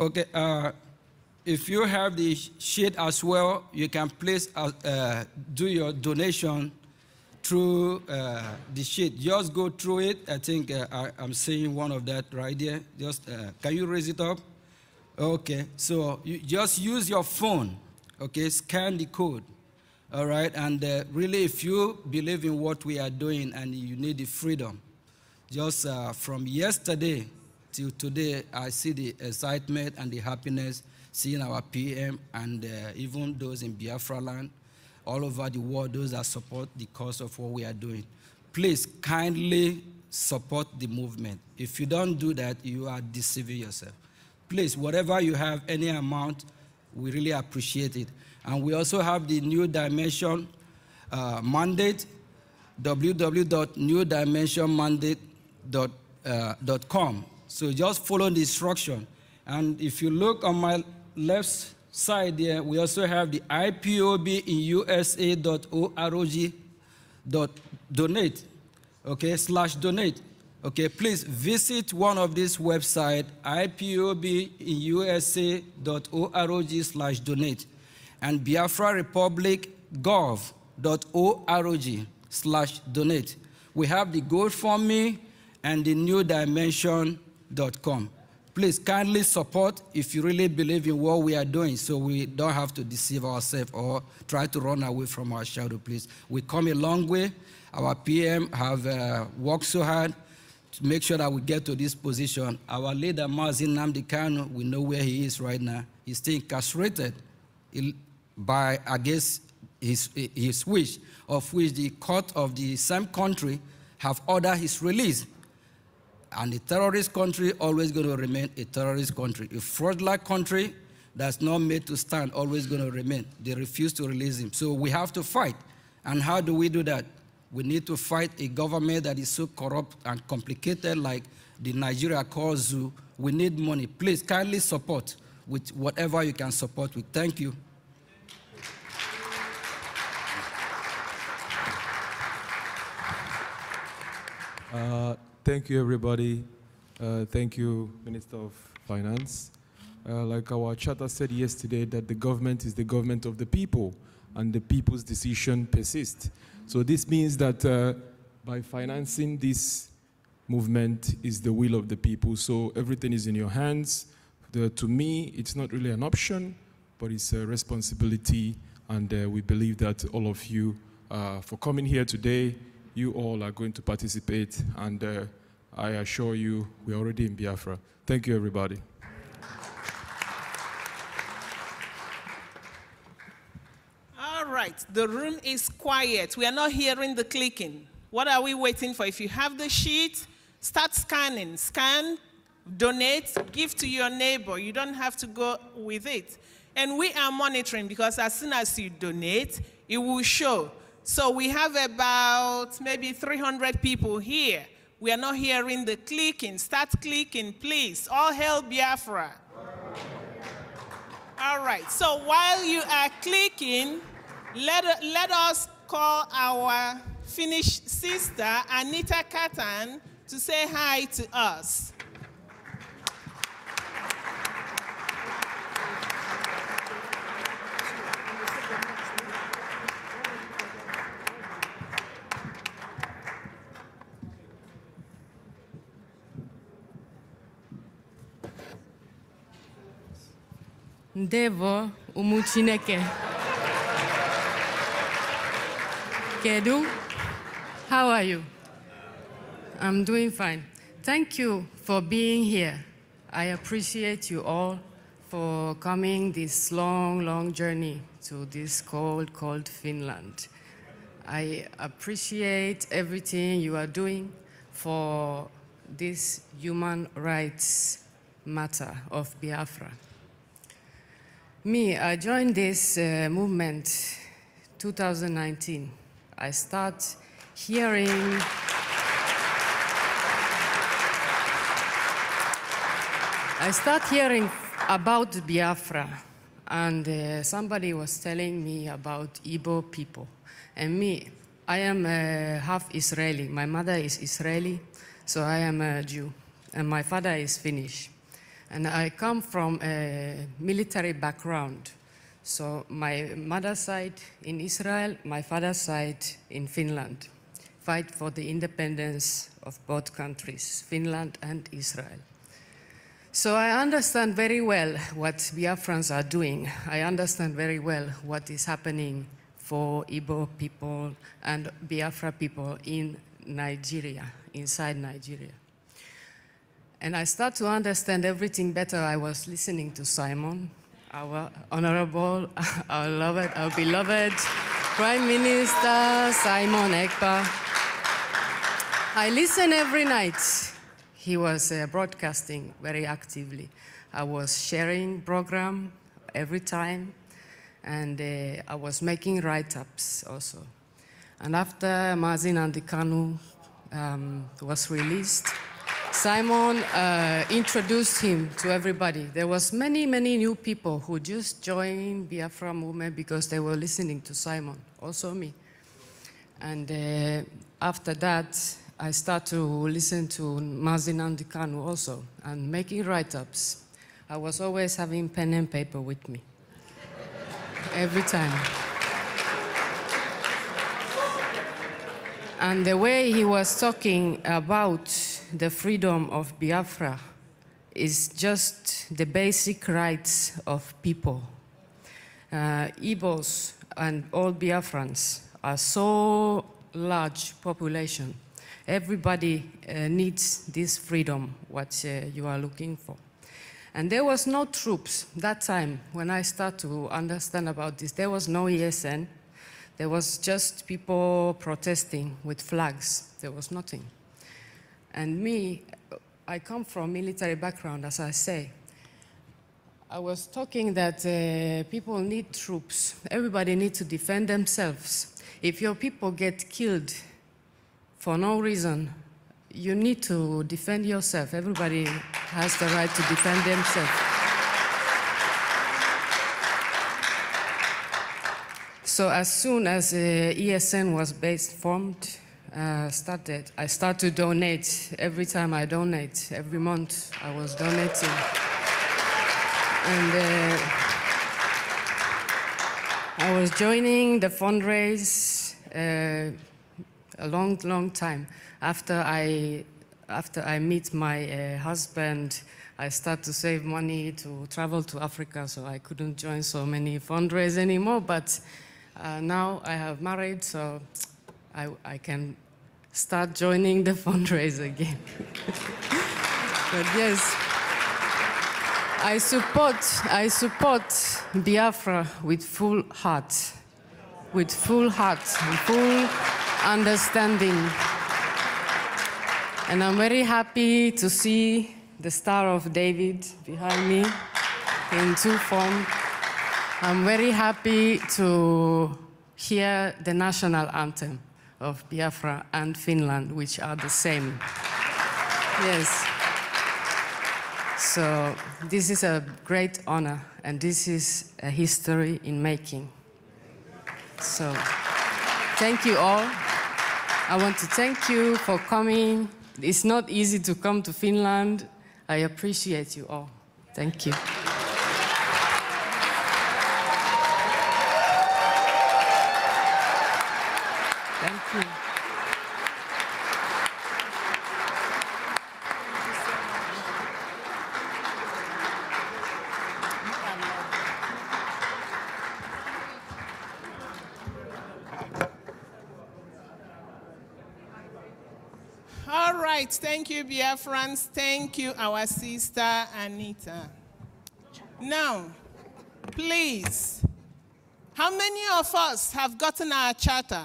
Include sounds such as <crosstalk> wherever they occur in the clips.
Okay, uh, if you have the sheet as well, you can please uh, uh, do your donation through uh, the sheet. Just go through it. I think uh, I, am seeing one of that right there. Just uh, can you raise it up? Okay, so you just use your phone. Okay, scan the code. All right, and really, if you believe in what we are doing and you need the freedom, just from yesterday, Till today, I see the excitement and the happiness seeing our PM and uh, even those in Biafra land, all over the world, those that support the cause of what we are doing. Please kindly support the movement. If you don't do that, you are deceiving yourself. Please, whatever you have, any amount, we really appreciate it. And we also have the New Dimension uh, mandate, www.newdimensionmandate.com. Uh, so just follow the instruction. And if you look on my left side there, we also have the IPOB in USA.org.donate, okay, slash donate. Okay, please visit one of these websites, IPOB in USA.org slash donate and biafrarepublic.gov.org slash donate. We have the GoFundMe and the New Dimension gmail.com. Please kindly support if you really believe in what we are doing so we don't have to deceive ourselves or try to run away from our shadow, please. We come a long way. Our PM have uh, worked so hard to make sure that we get to this position. Our leader, Mazin Namdi we know where he is right now. He's still incarcerated by against his, his wish, of which the court of the same country have ordered his release. And a terrorist country always going to remain a terrorist country. A fraudulent country that's not made to stand always going to remain. They refuse to release him. So we have to fight. And how do we do that? We need to fight a government that is so corrupt and complicated like the Nigeria calls zoo. We need money. Please kindly support with whatever you can support with. Thank you. Uh, Thank you, everybody. Uh, thank you, Minister of Finance. Uh, like our charter said yesterday, that the government is the government of the people, and the people's decision persists. So this means that uh, by financing this movement is the will of the people. So everything is in your hands. The, to me, it's not really an option, but it's a responsibility, and uh, we believe that all of you uh, for coming here today you all are going to participate, and uh, I assure you, we're already in Biafra. Thank you, everybody. All right, the room is quiet. We are not hearing the clicking. What are we waiting for? If you have the sheet, start scanning. Scan, donate, give to your neighbor. You don't have to go with it. And we are monitoring because as soon as you donate, it will show so we have about maybe 300 people here. We are not hearing the clicking. Start clicking, please. All hail Biafra. All right. So while you are clicking, let, let us call our Finnish sister, Anita Katan, to say hi to us. ndebọ ụmụ kedu how are you i'm doing fine thank you for being here i appreciate you all for coming this long long journey to this cold cold finland i appreciate everything you are doing for this human rights matter of biafra me, I joined this uh, movement 2019. I start hearing. I start hearing about Biafra, and uh, somebody was telling me about Ibo people. And me, I am uh, half Israeli. My mother is Israeli, so I am a Jew, and my father is Finnish. And I come from a military background. So my mother's side in Israel, my father's side in Finland. Fight for the independence of both countries, Finland and Israel. So I understand very well what Biafrans are doing. I understand very well what is happening for Ibo people and Biafra people in Nigeria, inside Nigeria. And I start to understand everything better. I was listening to Simon, our honorable, <laughs> our beloved, our beloved Prime Minister Simon Ekpa. I listen every night. He was uh, broadcasting very actively. I was sharing program every time, and uh, I was making write-ups also. And after Mazin Andikanu um, was released, Simon uh, introduced him to everybody. There was many, many new people who just joined Biafra movement because they were listening to Simon, also me. And uh, after that, I start to listen to Mazin Andikanu also and making write-ups. I was always having pen and paper with me, every time. And the way he was talking about the freedom of Biafra is just the basic rights of people. Uh, Igbos and all Biafrans are so large population. Everybody uh, needs this freedom, what uh, you are looking for. And there was no troops that time when I start to understand about this. There was no ESN. There was just people protesting with flags. There was nothing. And me, I come from military background, as I say. I was talking that uh, people need troops. Everybody needs to defend themselves. If your people get killed for no reason, you need to defend yourself. Everybody has the right to defend themselves. So as soon as uh, ESN was based, formed, uh, started, I start to donate. Every time I donate, every month I was donating. And uh, I was joining the fundraise uh, a long, long time. After I, after I meet my uh, husband, I start to save money to travel to Africa, so I couldn't join so many fundraise anymore. But uh, now I have married, so I, I can start joining the fundraiser again. but yes, I support, I support Biafra with full heart, with full heart and full understanding. And I'm very happy to see the Star of David behind me in two form. I'm very happy to hear the national anthem of Biafra and Finland, which are the same. Yes. So this is a great honor, and this is a history in making. So thank you all. I want to thank you for coming. It's not easy to come to Finland. I appreciate you all. Thank you. Friends, Thank you, our sister Anita. Now, please, how many of us have gotten our charter?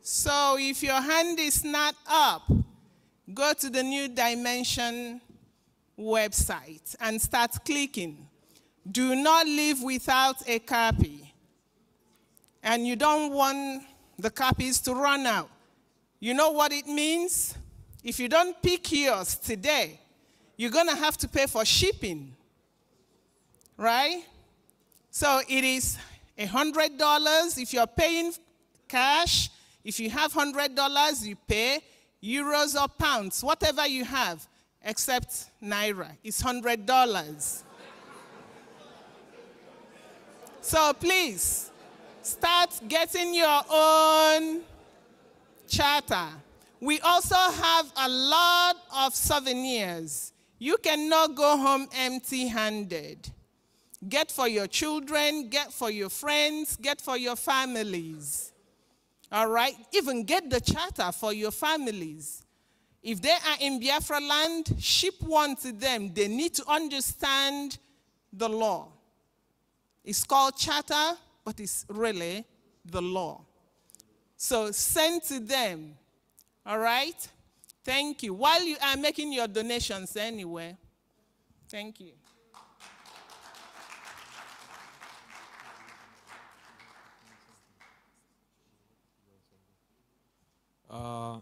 So if your hand is not up, go to the New Dimension website and start clicking. Do not leave without a copy. And you don't want the copies to run out. You know what it means? If you don't pick yours today, you're going to have to pay for shipping, right? So it is $100 if you're paying cash. If you have $100, you pay euros or pounds, whatever you have, except naira. It's $100. so please start getting your own charter. We also have a lot of souvenirs. You cannot go home empty handed. Get for your children, get for your friends, get for your families. All right? Even get the charter for your families. If they are in Biafra land, ship one to them. They need to understand the law. It's called charter, but it's really the law. So send to them. All right? Thank you. While you are making your donations anyway. Thank you. Uh,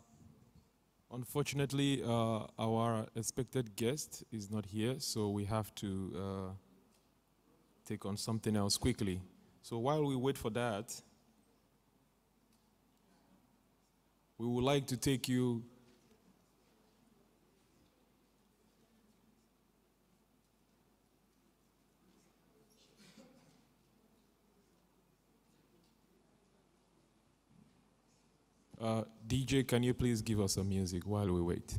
unfortunately, uh, our expected guest is not here, so we have to uh, take on something else quickly. So while we wait for that, we would like to take you Uh, DJ, can you please give us some music while we wait?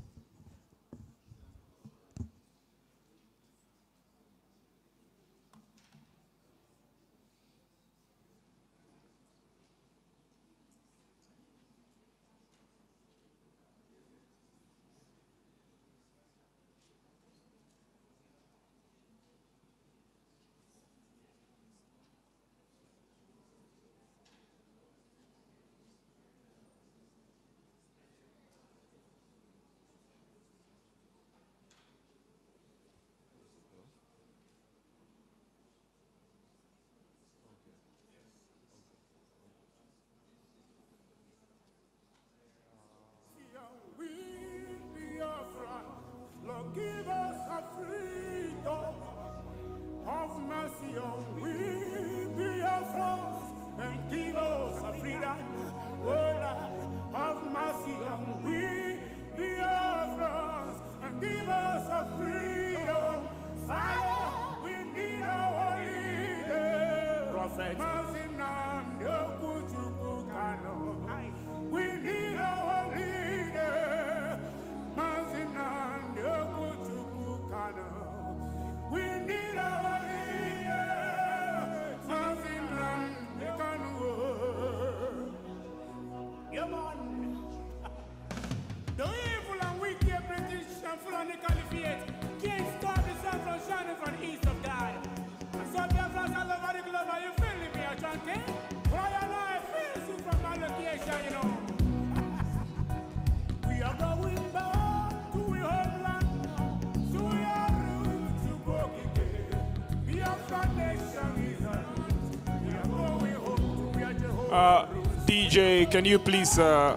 Uh, DJ, can you please? Uh,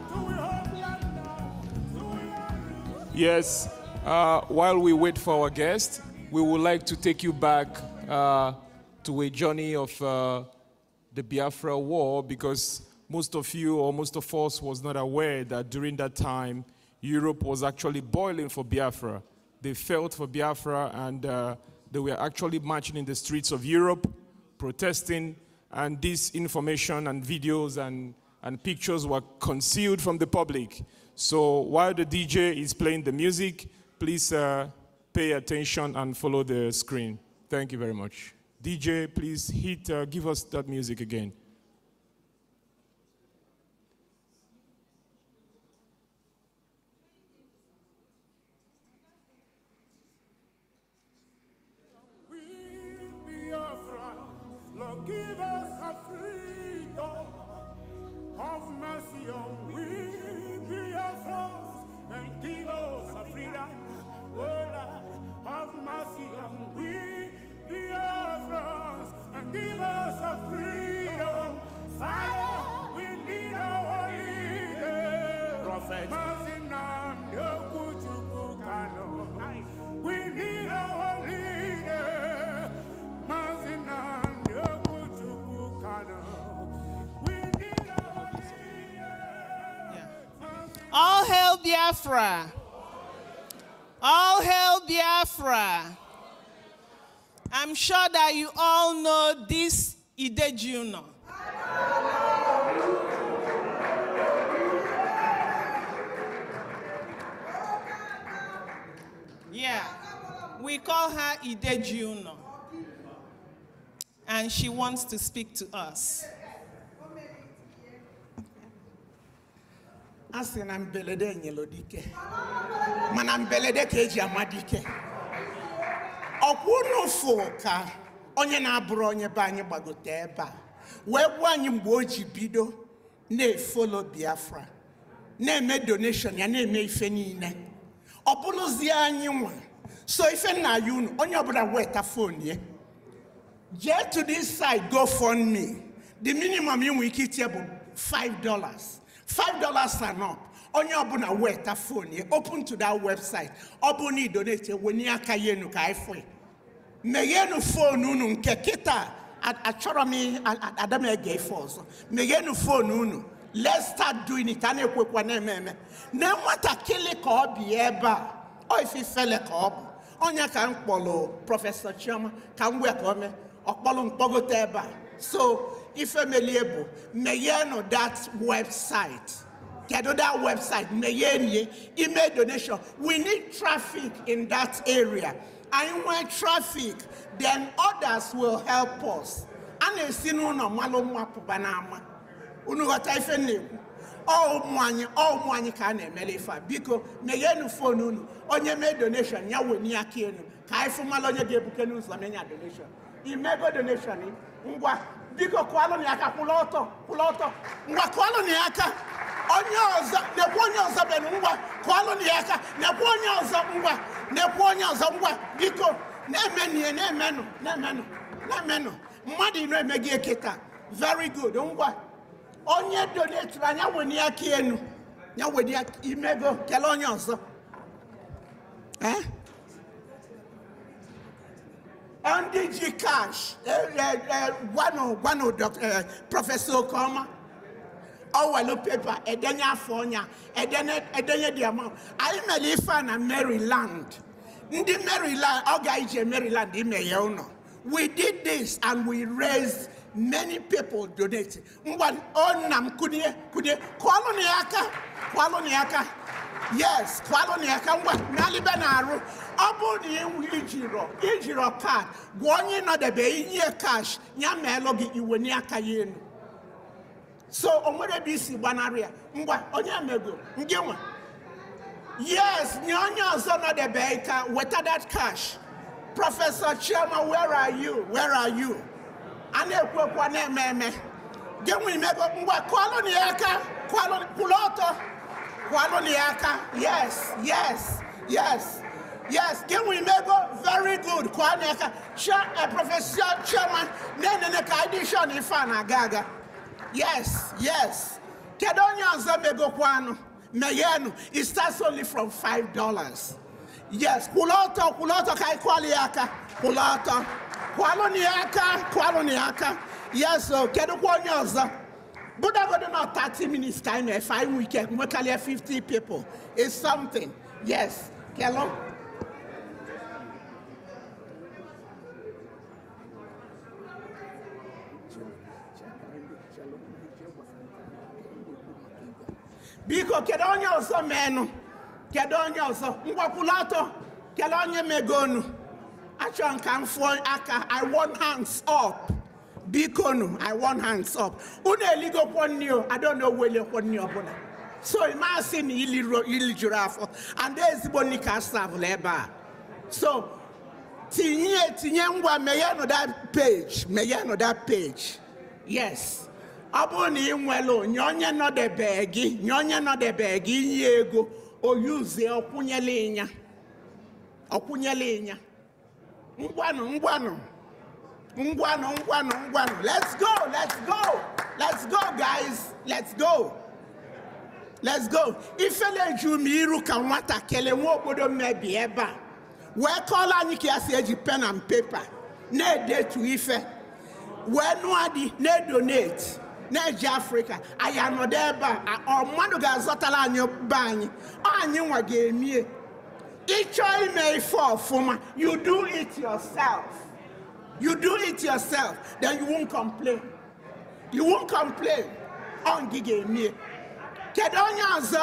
yes. Uh, while we wait for our guest, we would like to take you back uh, to a journey of uh, the Biafra War because most of you or most of us was not aware that during that time Europe was actually boiling for Biafra. They felt for Biafra and uh, they were actually marching in the streets of Europe, protesting and this information and videos and, and pictures were concealed from the public. So while the DJ is playing the music, please uh, pay attention and follow the screen. Thank you very much. DJ, please hit, uh, give us that music again. Biafra. All hail Biafra. I'm sure that you all know this Ide Juno. Yeah, we call her Ide Juno. And she wants to speak to us. asị na mbelede nyelụ dike mana mbelede ka eji ama dike ọkwa unu fụ ka onye na-abụrụ onye be anyị gbagote ebe a wee gbuo anyị mgbe o ji bido na-efolo biafra na-eme donation ya na-eme ife niile ọ bụrụzie anyị nwa so ife nna ya unu onye ọbụla weta fon ya jee to this side go fund me the minimum ị nwere ike itie bụ 5 dollars five dollars and up onye ọbụla weta fon open to that website ọ bụ na idonete wenye aka ya enu ka anyị meghenu fon unu nke kịta achọrọ m adam ege ife ọzọ meghenu fon unu let's start doing it a na-ekwekwa na-eme eme na nwatakịrị ka ọ bi ebe a ọ ka ọ bụ onye ka m kpọrọ prọfesọ chioma ka m wee ka ọ mee ọ kpọrọ mkpọgote ebe a so ifemeliebo meye no that website kedu that website meye nie email donation we need traffic in that area and when traffic then others will help us a na-esi n'ụlọ mmalụ nwa pụba n'ama unu ghọta ife na-ekwu ụmụ anyị ụmụ anyị ka a na-emere ife a biko meghenu fon unu onye mee donation ya wenye aka elu ka anyị fụ mmalụ onye ga-ebuke n'ụzọ menya donation imego donation ngwa biko kwalụ ya aka kwụla ọtọ kwụla ọtọ ngwa kụalụ ya aka onye ọzọ na-ekwu onye ọzọ bụ ngwa kwalụ ya aka na-ekwu onye ọzọ ngwa na-ekwu onye ọzọ ngwa biko na-emenụ ihe na-emenụ na-emenụ na-emenụ mmadụ ino eme gị eke taa very good ngwa onye donetiri anya nwere aka enu ya wenye imego kelee onye ọzọ ee eh? NDG Cash, eh, eh, eh, one of one of Dr. Professor Okoma, ọwọ oh, paper. pépà ẹdẹ ní afọọnya ẹdẹ a ẹdẹ ní di ọmọ ayé Maryland ndị Maryland ọ ga ije Maryland ime ya we did this and we raised many people donate ngwa ọ nna m kụnye kụnye kwalụ na ya aka kwalụ yes kwalụ na ya ka ngwa n'alibe na-arụ ọ bụrụ na iwu ijirọ ijirọ kaadị gwa onye nọdebe inye kash ya meelụ gị iwe n'aka ya elu so o nwere ebe isi gbanarị ya ngwa onye mego ndị nwa yes nye onye ọzọ nọdebe ka weta that cash prọfesọ chioma where are you where are you a na-ekwu ekwu na-eme eme gị nwa imego ngwa kwalụ na ya aka kwalụ kwụrụ ọtọ Kwanoniaka, yes, yes, yes, yes. Can we make very good? Kwanoniaka, chair a professor, chairman, Nene, Neneneka edition ifana gaga. Yes, yes. Kedonya Zambego Kwano, Meyenu, it starts only from $5. Yes, Kuloto, Kuloto Kai Kwaliaka, Kuloto, Kwaloniaka, Kwaloniaka. Yes, Kedu Kedonya Zambego. But I got about 30 minutes time a five weekend, we can 50 people. It's something. Yes. Kello? Biko, kedu onye ọzọ menụ? Kedu onye ọzọ? Mgbakwụlatọ, kedu onye megonu? Achọ nka m I want hands up. bikonu i want hands up unu eligokwo nri o i adona welekwo nri ọbụla so masị na ili juru afọ ada ezigbo nri ka savụla ebe a so tinye tinye ngwa meghenụ that page meghenụ that page yes ọ bụrụ na ị nwere nye onye nọdebe gị nye onye nọdebe gị inye ego oyuzie ọkwụnyela ịnya ọkwụnyela ịnya ngwanụ ngwanụ ngwano ngwano ngwano Let's go, let's go, let's go guys, let's go. Let's go. Ifele ju m iru ka nwatakịrị nwa obodo mmebi ebe a wee kọọla anyị ka eji pen and paper na-edetu ife wee nwadi na-edonate na-eji afrịka anyị anọdụ ebe a ọ mmadụ ga-azọtara anyị be anyị ọ anyị nwa ga-emie ime ife ọfụma you do it yourself. You do it yourself, then you won't complain. You won't complain. On gige me. Kedu onye ọzọ?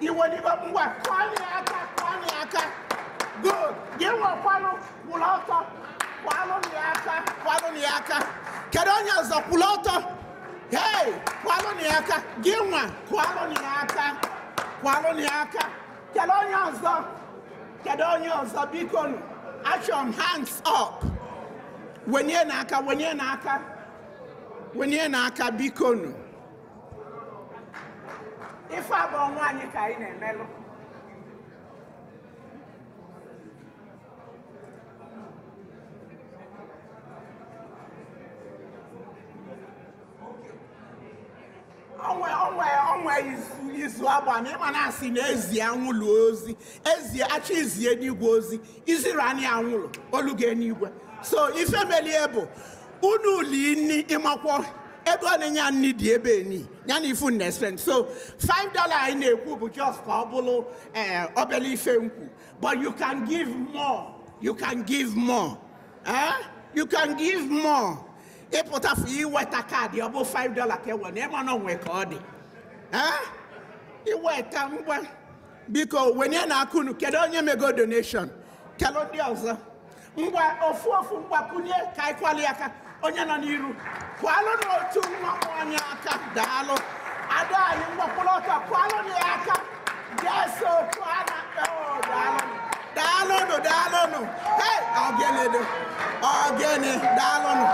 Iwe n'ibe mgbe kwanye aka kwanye aka. Good. Gị nwekwanụ kwụrụ ọtọ. Kwalụ ya aka kwalụ ya aka. Kedu onye ọzọ kwụrụ ọtọ? Hey, kwalụ ya aka. Gị nwa kwalụ ya aka kwalụ ya aka. Kedu onye ọzọ? Kedu onye ọzọ biko Achọm hands up wenye n'aka wenye n'aka wenye n'aka biko nụ ife abụọ nwaanyị ka anyị na-emelụ onwe izu agbana ịma na-asị na ezie anwụlụ ozi ezi achọ izie n'igwe ozi iziri anyị anwụlụ oluge n'igwe so ifemelie bụ unu lini ịmakwọ ebe ọ na-enye nni dị ebe e ni ya na ifu na-espen so 5 dollar anyị na-ekwu bụ just ka ọ bụrụ eh, obele ife nkwu but you can give more you can give more eh? you can give more ịpụtafụ iweta kaadị ọ bụ five dollar ka e ewe na ịma na onwe ka ọ dị iweta ngwa biko wenye na akụnụ kedu onye mego donation kelụ ndị ọzọ ngwa ofu ofu mgbakwunye ka anyị kwali aka onye nọ n'iru kwalụ n'otu mmanwụ anyị aka daalụ adọ anyị mgbakwụrụ ọtọ kwalụ ya aka jeso otu a na daalụnụ daalụnụ daalụnụ ọ gịnị ogene nụ.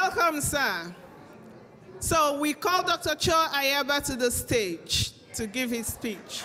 Welcome, sir. So we call Dr. Cho Ayaba to the stage to give his speech.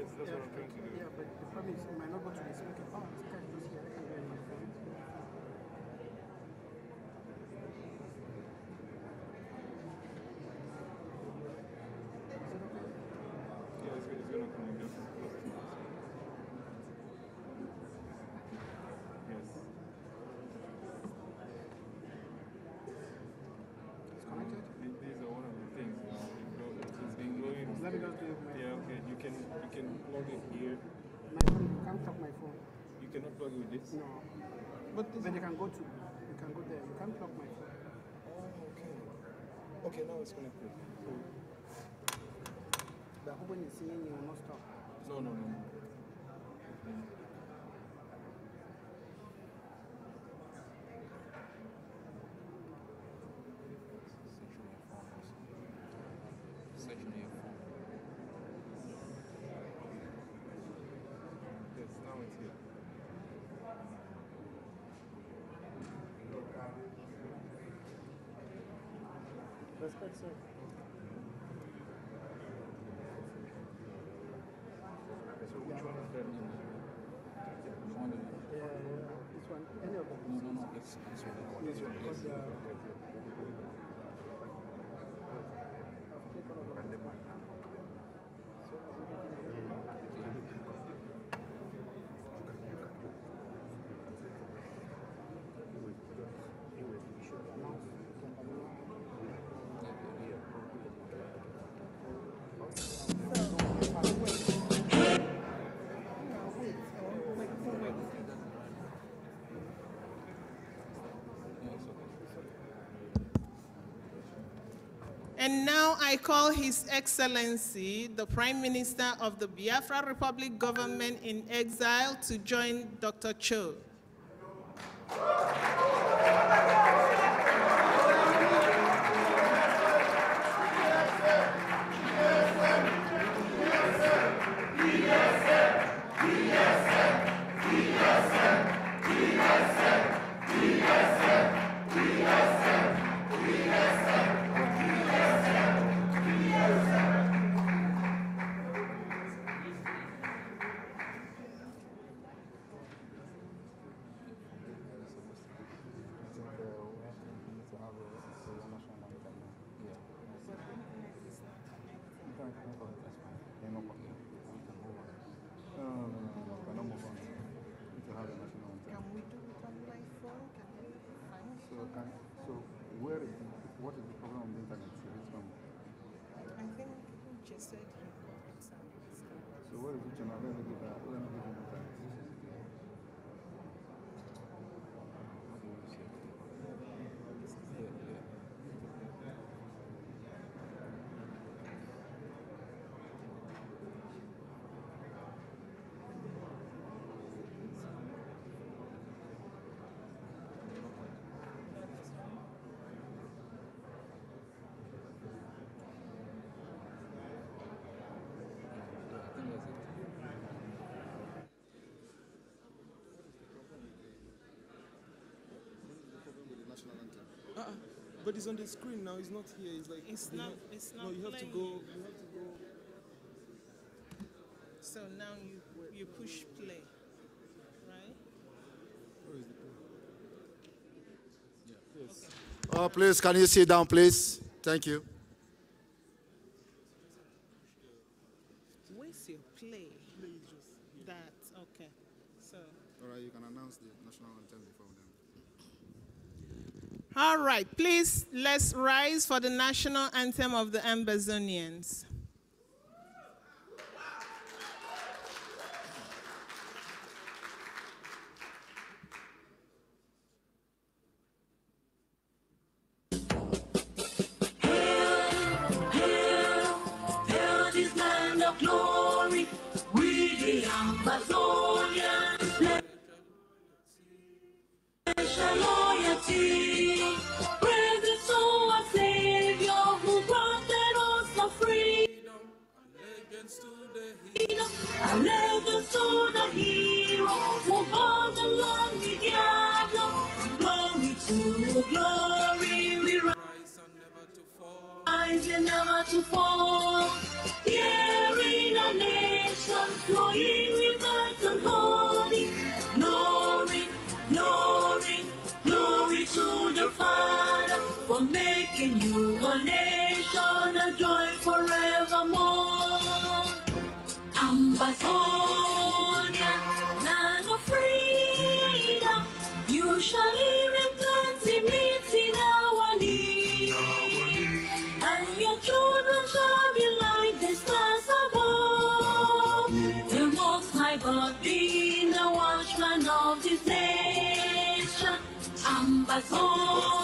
Yes, that's yeah, what I'm trying to do. Yeah, but the problem is, you might not go to the can plug it here. My phone, you can't plug my phone. You cannot plug it with this? No. But, this but you can go to, you can go there. You can't plug my phone. Oh, okay. Okay, now it's connected. So, the open is saying you will not stop. No, no, no. no. sir. And now I call His Excellency, the Prime Minister of the Biafra Republic Government in Exile, to join Dr. Cho. But on the screen now. He's not here. He's like it's not. Have, it's not. No, you have playing. to go. You have to go. So now you you push play, right? Where is the play? Yeah. Yes. Okay. Oh, please, can you sit down, please? Thank you. Let's rise for the national anthem of the Ambazonians. to fall. Here in our nation, flowing with light and glory, glory, glory, glory to the Father for making you a nation, a joy forevermore. Ambassador. pasó.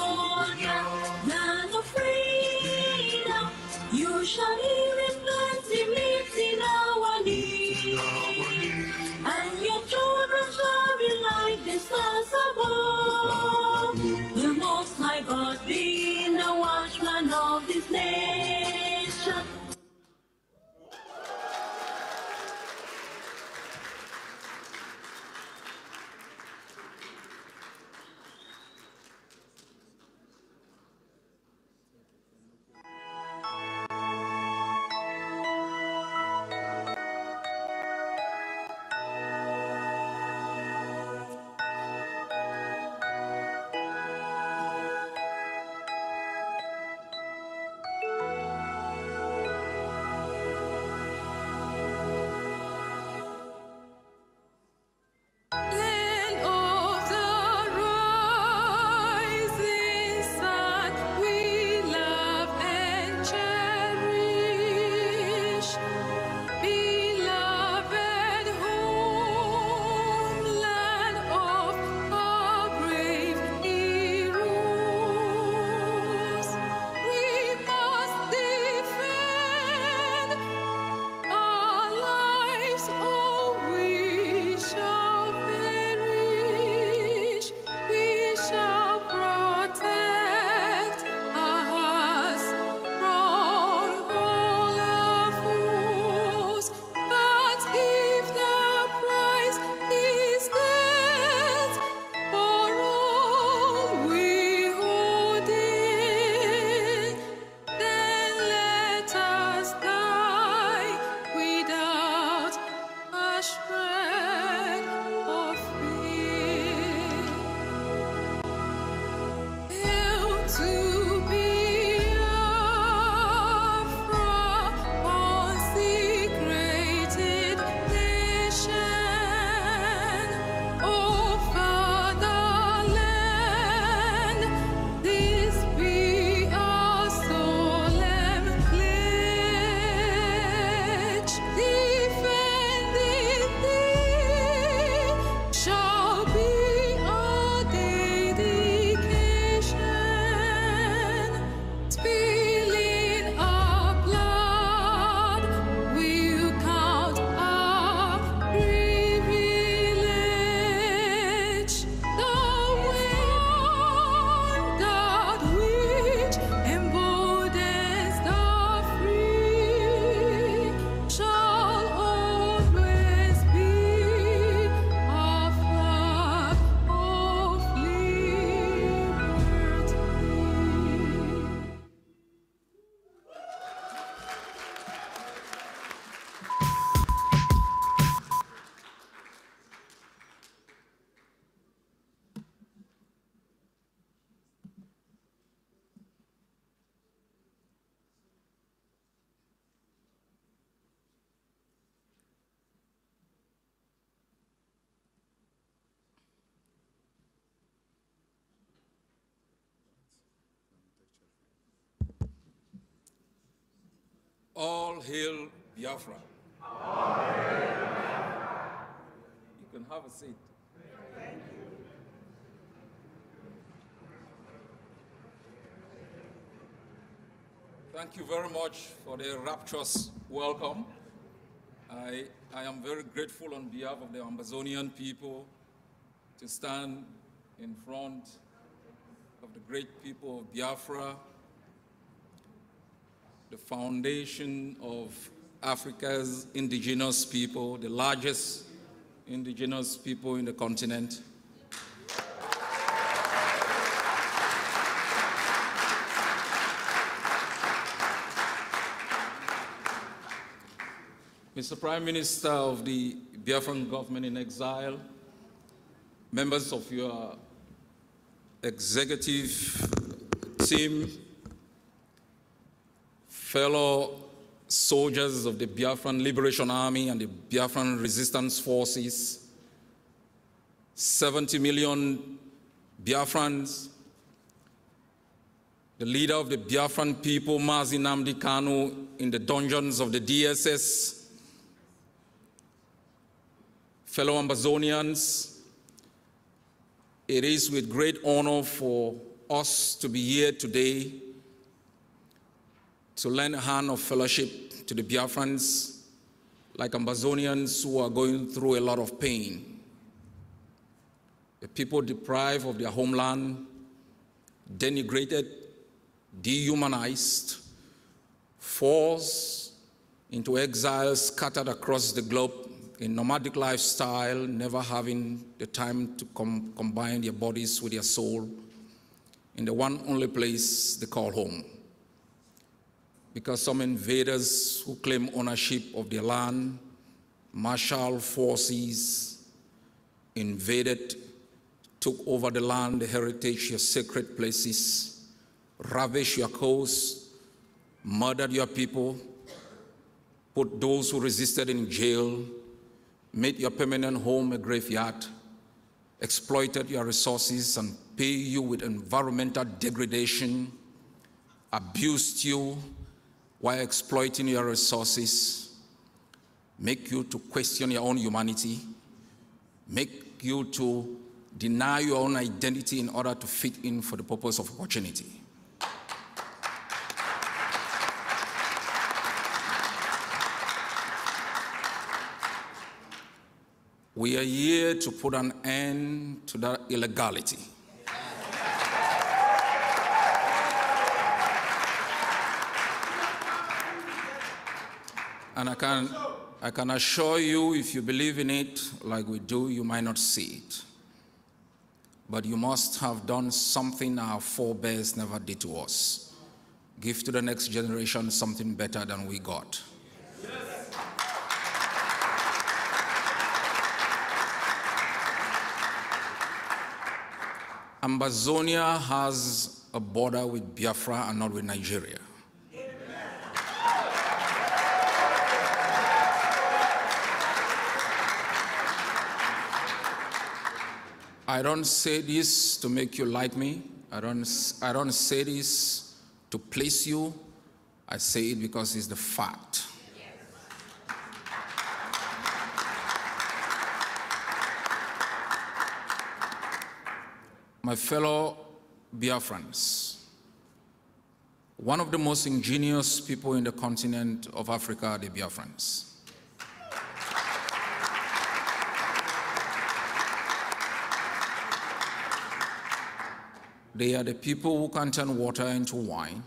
All hail Biafra. All hail Biafra. You can have a seat. Thank you. Thank you very much for the rapturous welcome. I, I am very grateful on behalf of the Amazonian people to stand in front of the great people of Biafra the foundation of Africa's indigenous people, the largest indigenous people in the continent. Mr. Prime Minister of the Biafran government in exile, members of your executive team, fellow soldiers of the Biafran Liberation Army and the Biafran Resistance Forces, 70 million Biafrans, the leader of the Biafran people, Mazi Namdi Kanu, in the dungeons of the DSS, fellow Amazonians, it is with great honor for us to be here today to lend a hand of fellowship to the Biafrans, like Amazonians who are going through a lot of pain. The people deprived of their homeland, denigrated, dehumanized, forced into exile scattered across the globe in nomadic lifestyle, never having the time to com combine their bodies with their soul in the one only place they call home because some invaders who claim ownership of their land, martial forces invaded, took over the land, the heritage, your sacred places, ravished your coasts, murdered your people, put those who resisted in jail, made your permanent home a graveyard, exploited your resources and pay you with environmental degradation, abused you, while exploiting your resources, make you to question your own humanity, make you to deny your own identity in order to fit in for the purpose of opportunity. We are here to put an end to that illegality. And I can, I can assure you, if you believe in it like we do, you might not see it. But you must have done something our forebears never did to us. Give to the next generation something better than we got. Yes. Ambazonia has a border with Biafra and not with Nigeria. I don't say this to make you like me. I don't, I don't say this to please you. I say it because it's the fact. my fellow Biafrans, one of the most ingenious people in the continent of Africa the Biafrans. They are the people who can turn water into wine.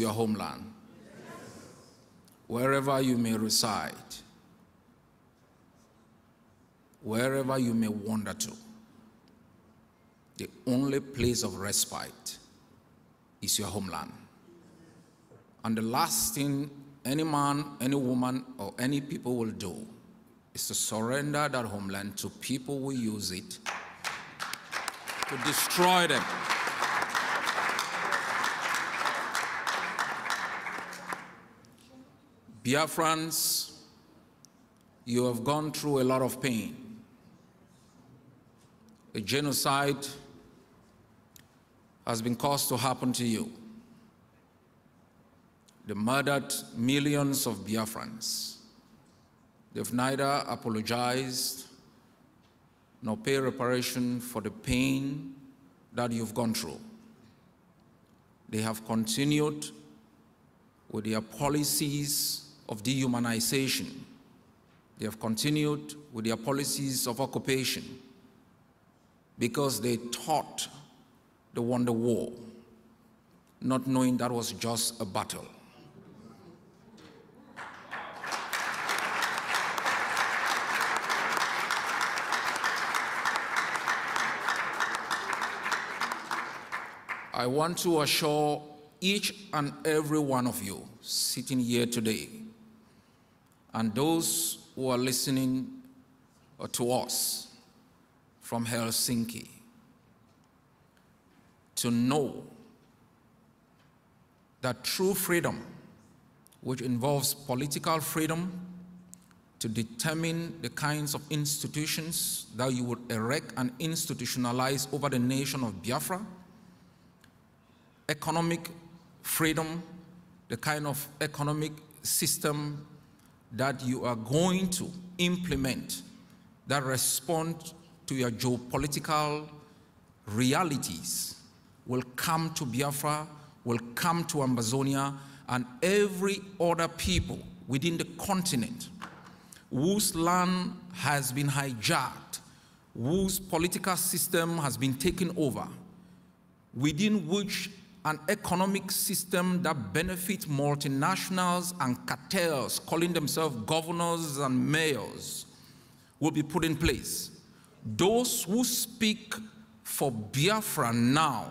your homeland. Wherever you may reside, wherever you may wander to, the only place of respite is your homeland. And the last thing any man, any woman, or any people will do is to surrender that homeland to people who use it to destroy them. Biafrans, you have gone through a lot of pain. A genocide has been caused to happen to you. They murdered millions of Biafrans. They've neither apologized nor pay reparation for the pain that you've gone through. They have continued with their policies of dehumanization. They have continued with their policies of occupation because they thought they won the war, not knowing that was just a battle. I want to assure each and every one of you sitting here today and those who are listening to us from Helsinki to know that true freedom, which involves political freedom to determine the kinds of institutions that you would erect and institutionalize over the nation of Biafra, economic freedom, the kind of economic system that you are going to implement that respond to your geopolitical realities will come to Biafra, will come to Amazonia, and every other people within the continent whose land has been hijacked, whose political system has been taken over, within which an economic system that benefits multinationals and cartels, calling themselves governors and mayors, will be put in place. Those who speak for Biafra now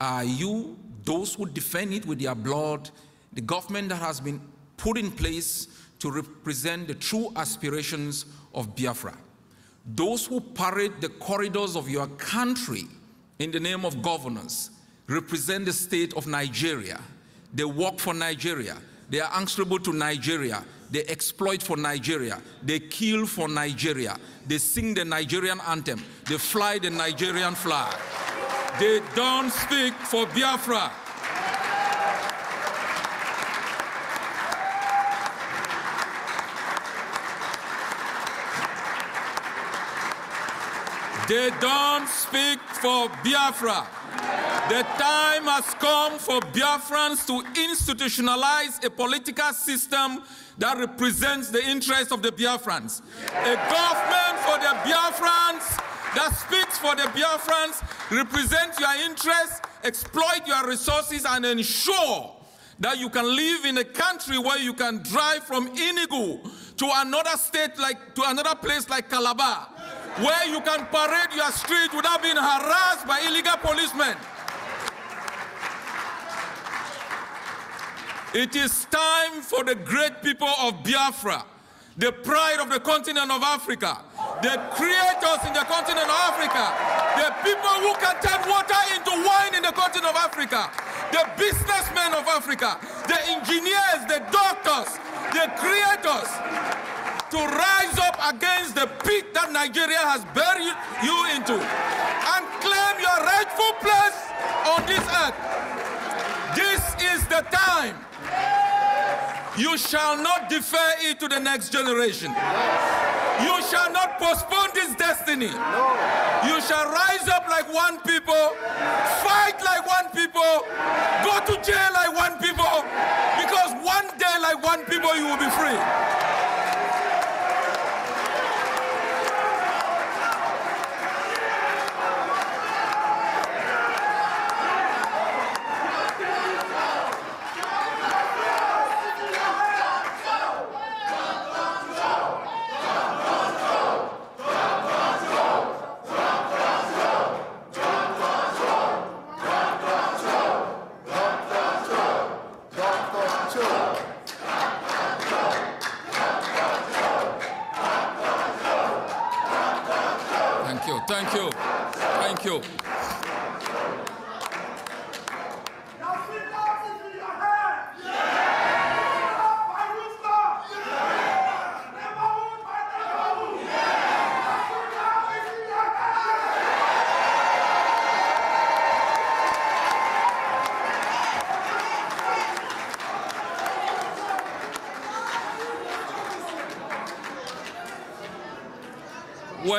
are you, those who defend it with their blood, the government that has been put in place to represent the true aspirations of Biafra. Those who parade the corridors of your country in the name of governance represent the state of Nigeria. They work for Nigeria. They are answerable to Nigeria. They exploit for Nigeria. They kill for Nigeria. They sing the Nigerian anthem. They fly the Nigerian flag. They don't speak for Biafra. They don't speak for Biafra. The time has come for Biafrans to institutionalize a political system that represents the interests of the Biafrans. A government for the Biafrans that speaks for the Biafrans, represents your interests, exploit your resources, and ensure that you can live in a country where you can drive from Inigo to another state like to another place like Calabar, where you can parade your street without being harassed by illegal policemen. It is time for the great people of Biafra, the pride of the continent of Africa, the creators in the continent of Africa, the people who can turn water into wine in the continent of Africa, the businessmen of Africa, the engineers, the doctors, the creators, to rise up against the pit that Nigeria has buried you into and claim your rightful place on this earth. This is the time you shall not defer it to the next generation. You shall not postpone this destiny. You shall rise up like one people, fight like one people, go to jail like one people, because one day like one people you will be free.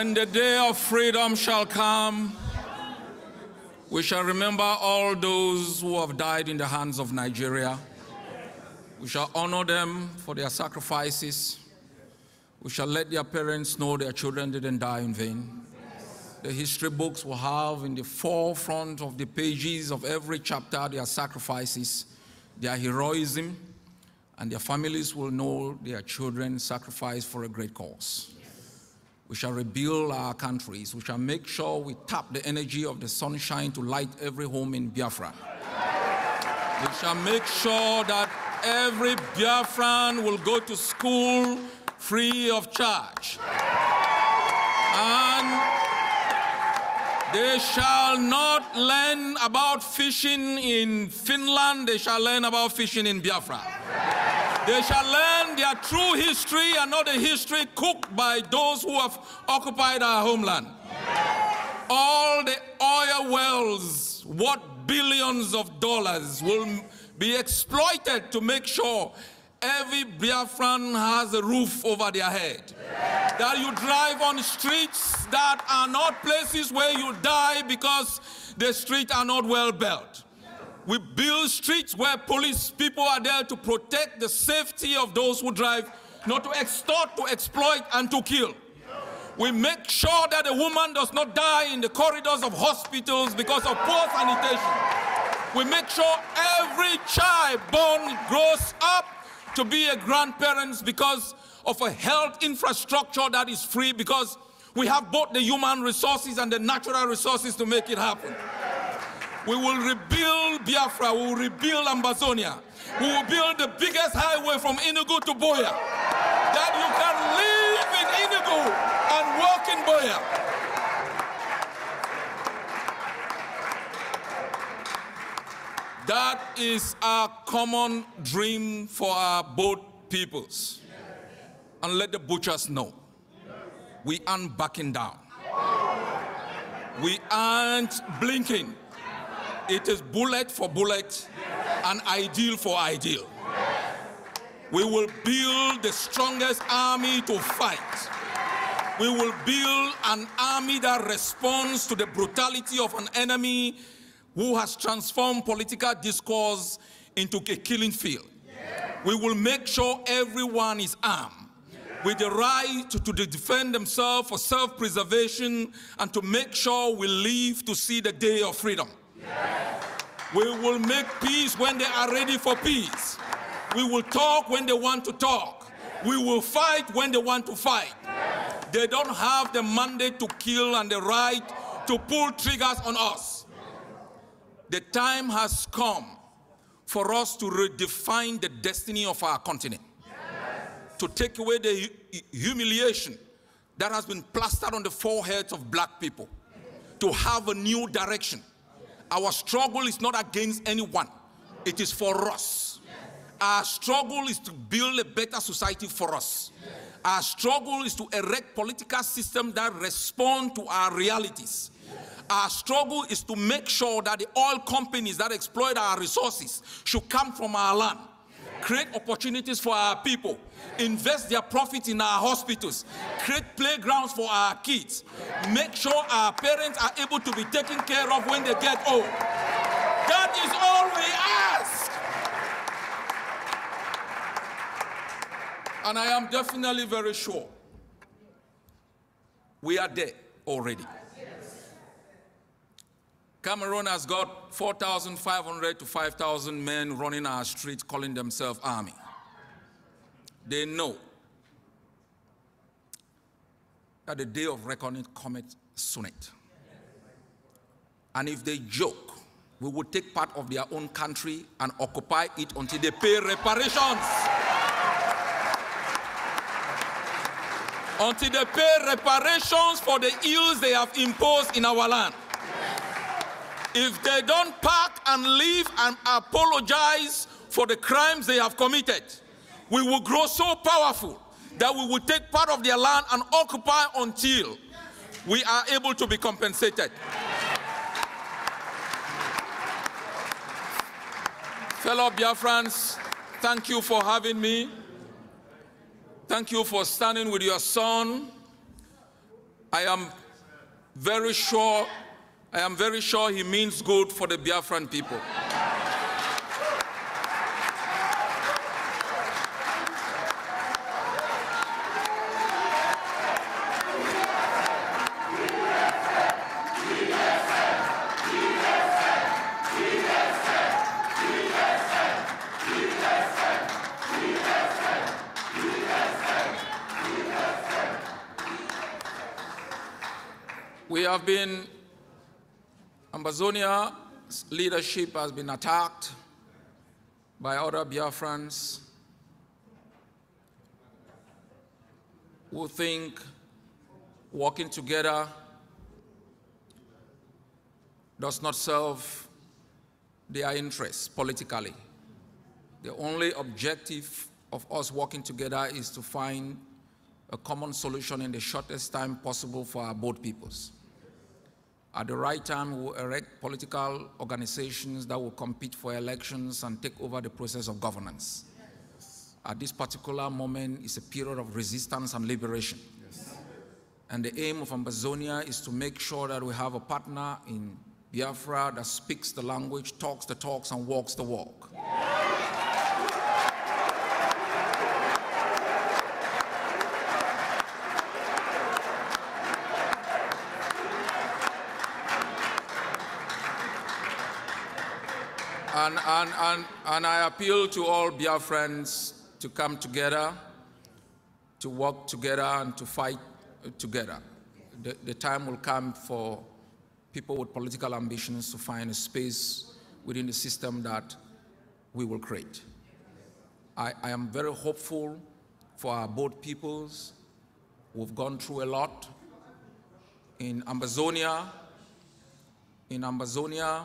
When the day of freedom shall come, we shall remember all those who have died in the hands of Nigeria. We shall honor them for their sacrifices. We shall let their parents know their children didn't die in vain. The history books will have in the forefront of the pages of every chapter their sacrifices, their heroism, and their families will know their children sacrificed for a great cause. We shall rebuild our countries. We shall make sure we tap the energy of the sunshine to light every home in Biafra. We shall make sure that every Biafran will go to school free of charge. And they shall not learn about fishing in Finland, they shall learn about fishing in Biafra. They shall learn their true history and not the history cooked by those who have occupied our homeland. Yes. All the oil wells, what billions of dollars will be exploited to make sure every Biafran has a roof over their head. Yes. That you drive on streets that are not places where you die because the streets are not well built. We build streets where police people are there to protect the safety of those who drive, not to extort, to exploit, and to kill. We make sure that a woman does not die in the corridors of hospitals because of poor sanitation. We make sure every child born grows up to be a grandparent because of a health infrastructure that is free because we have both the human resources and the natural resources to make it happen. We will rebuild Biafra. We will rebuild Ambazonia. We will build the biggest highway from Enugu to Boya. That you can live in Enugu and work in Boya. That is our common dream for our both peoples. And let the butchers know we aren't backing down. We aren't blinking. It is bullet for bullet and ideal for ideal. We will build the strongest army to fight. We will build an army that responds to the brutality of an enemy who has transformed political discourse into a killing field. We will make sure everyone is armed with the right to defend themselves for self-preservation and to make sure we live to see the day of freedom. We will make peace when they are ready for peace. We will talk when they want to talk. We will fight when they want to fight. They don't have the mandate to kill and the right to pull triggers on us. The time has come for us to redefine the destiny of our continent, yes. to take away the humiliation that has been plastered on the foreheads of black people, to have a new direction, our struggle is not against anyone, it is for us. Our struggle is to build a better society for us. Our struggle is to erect political systems that respond to our realities. Our struggle is to make sure that the oil companies that exploit our resources should come from our land create opportunities for our people, invest their profit in our hospitals, create playgrounds for our kids, make sure our parents are able to be taken care of when they get old. That is all we ask. And I am definitely very sure we are there already. Cameroon has got 4,500 to 5,000 men running our streets calling themselves army. They know that the day of reckoning cometh soonest. And if they joke, we will take part of their own country and occupy it until they pay reparations. until they pay reparations for the ills they have imposed in our land if they don't park and leave and apologize for the crimes they have committed, we will grow so powerful that we will take part of their land and occupy until we are able to be compensated. Fellow Biafrans, thank you for having me. Thank you for standing with your son. I am very sure I am very sure he means good for the Biafran people. Zonia's leadership has been attacked by other Biafrans who think working together does not serve their interests politically. The only objective of us working together is to find a common solution in the shortest time possible for our both peoples. At the right time, we will erect political organizations that will compete for elections and take over the process of governance. Yes. At this particular moment is a period of resistance and liberation. Yes. And the aim of Ambazonia is to make sure that we have a partner in Biafra that speaks the language, talks the talks, and walks the walk. Yes. And, and, and, and I appeal to all friends to come together, to work together, and to fight together. The, the time will come for people with political ambitions to find a space within the system that we will create. I, I am very hopeful for our both peoples. We've gone through a lot in Amazonia, in Amazonia,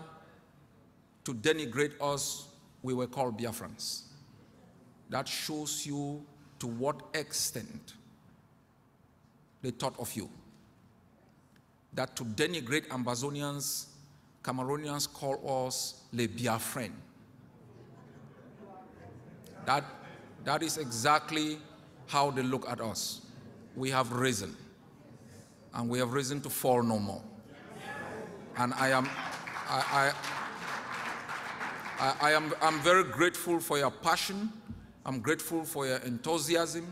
to denigrate us, we were called Biafrans. That shows you to what extent they thought of you. That to denigrate Ambazonians, Cameroonians call us Le Biafran. That, that is exactly how they look at us. We have risen, and we have risen to fall no more. And I am, I, I I, I am I'm very grateful for your passion. I'm grateful for your enthusiasm.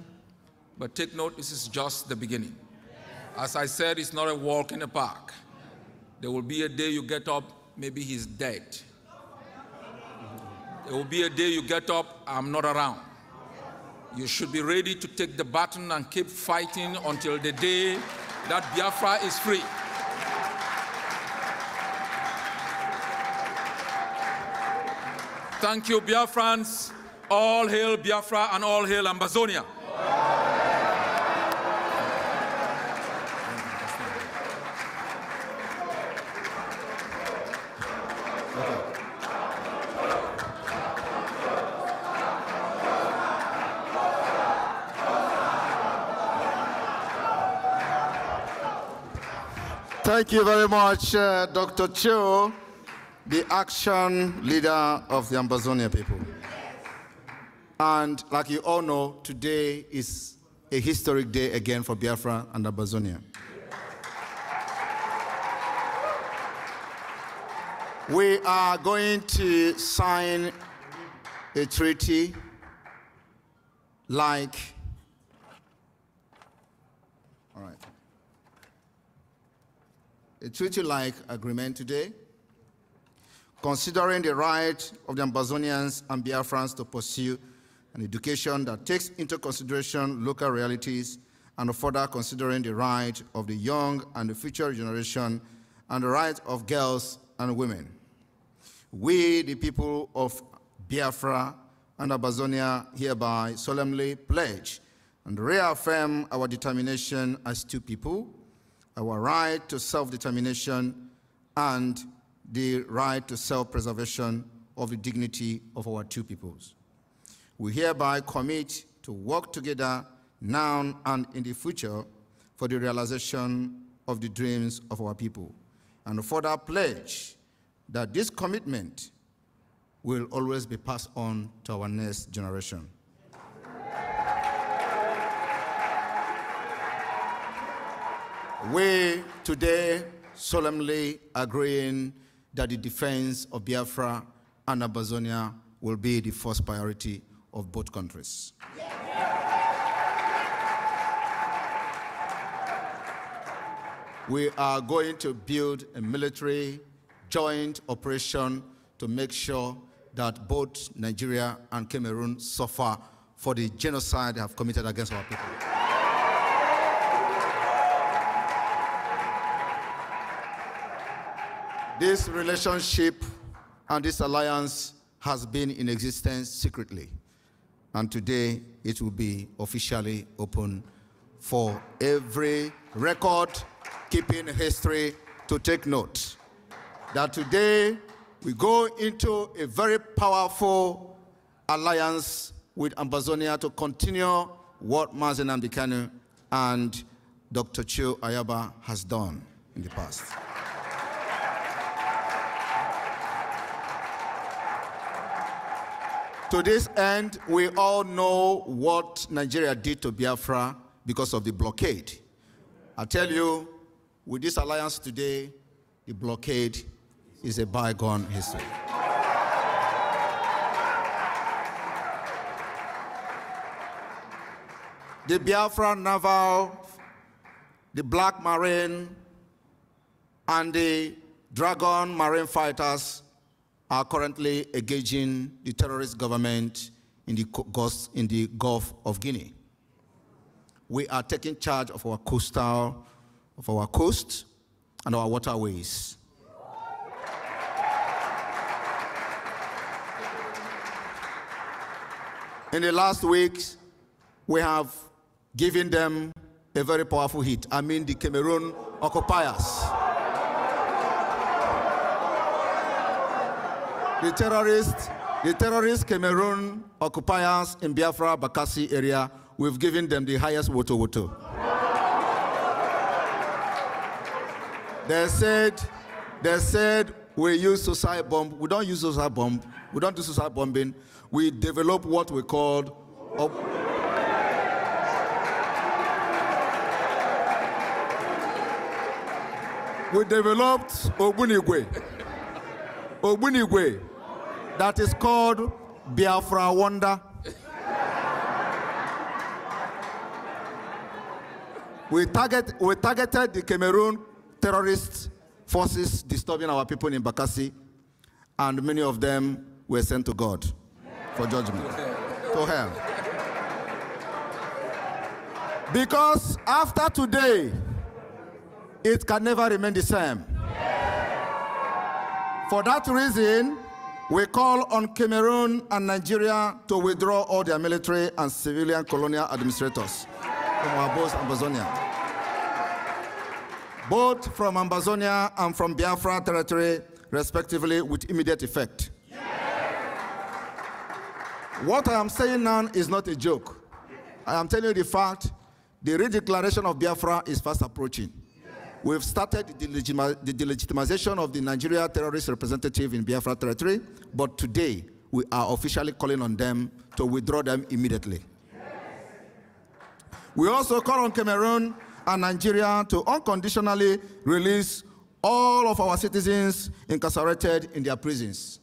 But take note, this is just the beginning. As I said, it's not a walk in the park. There will be a day you get up, maybe he's dead. There will be a day you get up, I'm not around. You should be ready to take the baton and keep fighting until the day that Biafra is free. Thank you, Biafrans. All hail Biafra and all hail Ambazonia. Thank you very much, uh, Dr. Cho the action leader of the Ambazonia people. And like you all know, today is a historic day again for Biafra and Ambazonia. We are going to sign a treaty like all right a treaty like agreement today considering the right of the Ambazonians and Biafrans to pursue an education that takes into consideration local realities and further considering the right of the young and the future generation and the right of girls and women. We, the people of Biafra and Abazonia, hereby solemnly pledge and reaffirm our determination as two people, our right to self-determination and the right to self-preservation of the dignity of our two peoples. We hereby commit to work together now and in the future for the realization of the dreams of our people, and further pledge that this commitment will always be passed on to our next generation. We today solemnly agreeing that the defense of Biafra and Abazonia will be the first priority of both countries. We are going to build a military joint operation to make sure that both Nigeria and Cameroon suffer for the genocide they have committed against our people. This relationship and this alliance has been in existence secretly, and today it will be officially open for every record keeping history to take note that today we go into a very powerful alliance with Ambazonia to continue what Mazen Amdekanu and Dr. Chiu Ayaba has done in the past. To this end, we all know what Nigeria did to Biafra because of the blockade. I tell you, with this alliance today, the blockade is a bygone history. the Biafra Naval, the Black Marine, and the Dragon Marine fighters are currently engaging the terrorist government in the, Gulf, in the Gulf of Guinea. We are taking charge of our coastal, of our coast and our waterways. In the last weeks, we have given them a very powerful hit. I mean the Cameroon occupiers. the terrorists, the terrorist Cameroon occupiers in Biafra Bakassi area, we've given them the highest woto woto. They said, they said we use suicide bomb. We don't use suicide bomb. We don't do suicide bombing. We develop what we called. we developed Ogunigwe. Ogbunigwe that is called Biafra Wonder. we, target, we targeted the Cameroon terrorist forces disturbing our people in Bakassi, and many of them were sent to God for judgment, to hell. Because after today, it can never remain the same. For that reason, we call on Cameroon and Nigeria to withdraw all their military and civilian colonial administrators from our both Amazonia. Both from Amazonia and from Biafra territory, respectively, with immediate effect. What I am saying now is not a joke. I am telling you the fact, the redeclaration of Biafra is fast approaching. We've started the, the delegitimization of the Nigeria terrorist representative in Biafra territory, but today we are officially calling on them to withdraw them immediately. We also call on Cameroon and Nigeria to unconditionally release all of our citizens incarcerated in their prisons.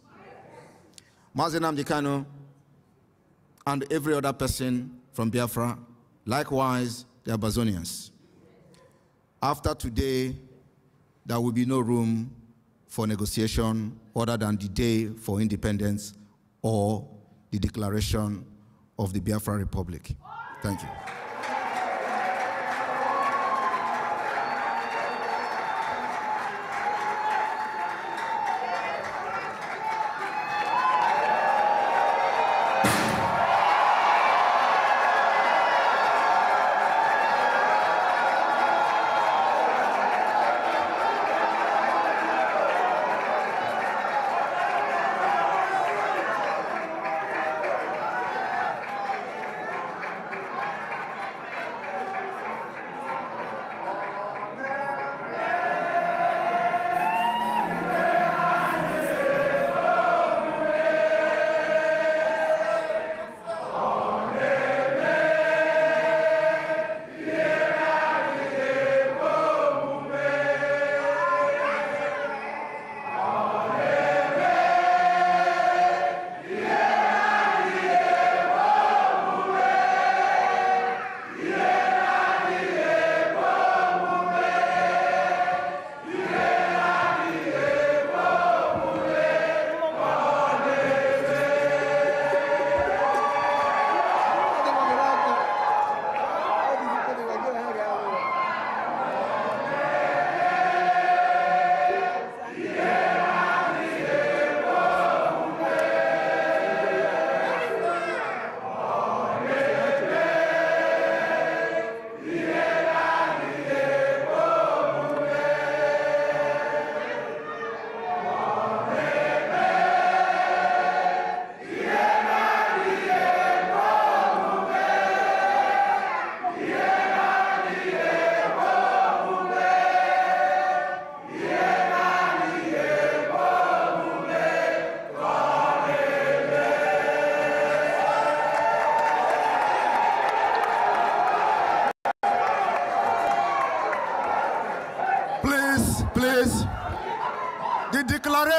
Mazenam Dikano and every other person from Biafra, likewise the Abazonians. After today, there will be no room for negotiation other than the day for independence or the declaration of the Biafra Republic. Thank you.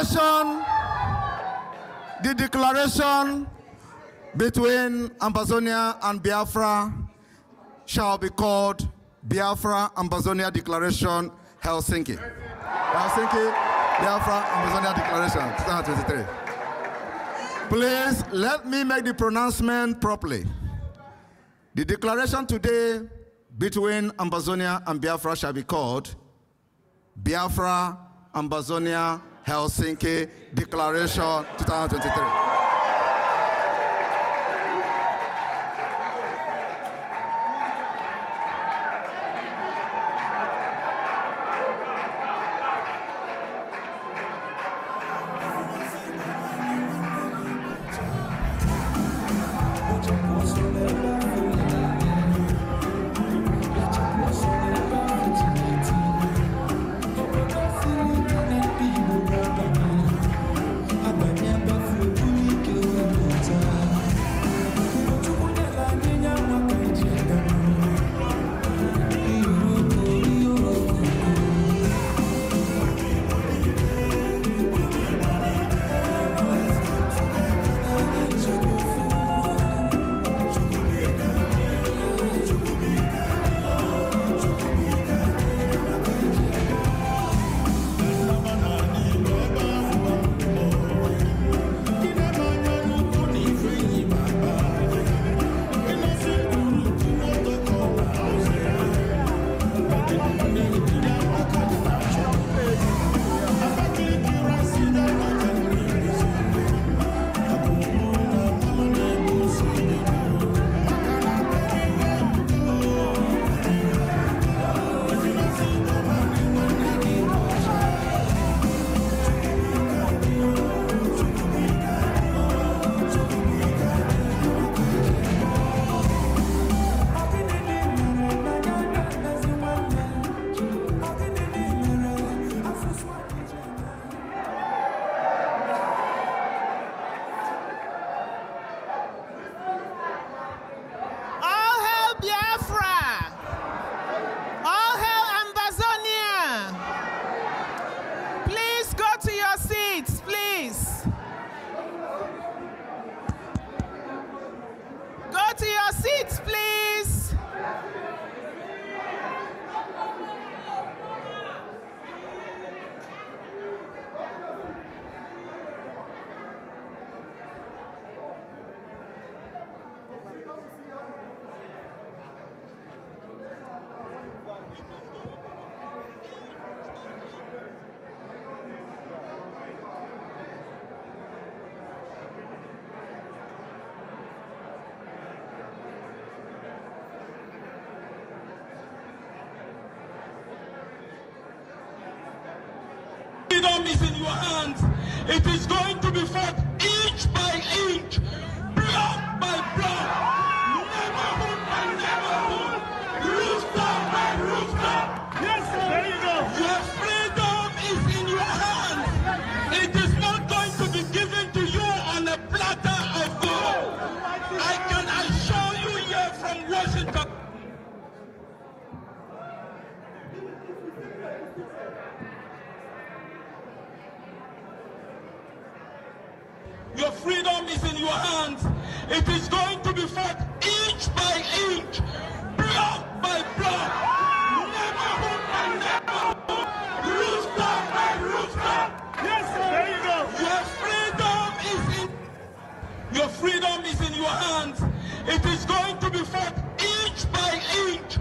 declaration, the declaration between Ambazonia and Biafra shall be called Biafra Ambazonia Declaration Helsinki. Helsinki Biafra Ambazonia Declaration 2023. Please let me make the pronouncement properly. The declaration today between Ambazonia and Biafra shall be called Biafra Ambazonia Helsinki Declaration 2023. It is good. is in your hands. It is going to be fought inch by inch, block by block, neighborhood by neighborhood, by Yes, There you go. Your freedom is in your freedom is in your hands. It is going to be fought inch by inch,